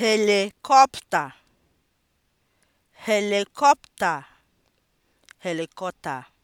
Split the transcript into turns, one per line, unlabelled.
helikọpta helikọpta helikọpta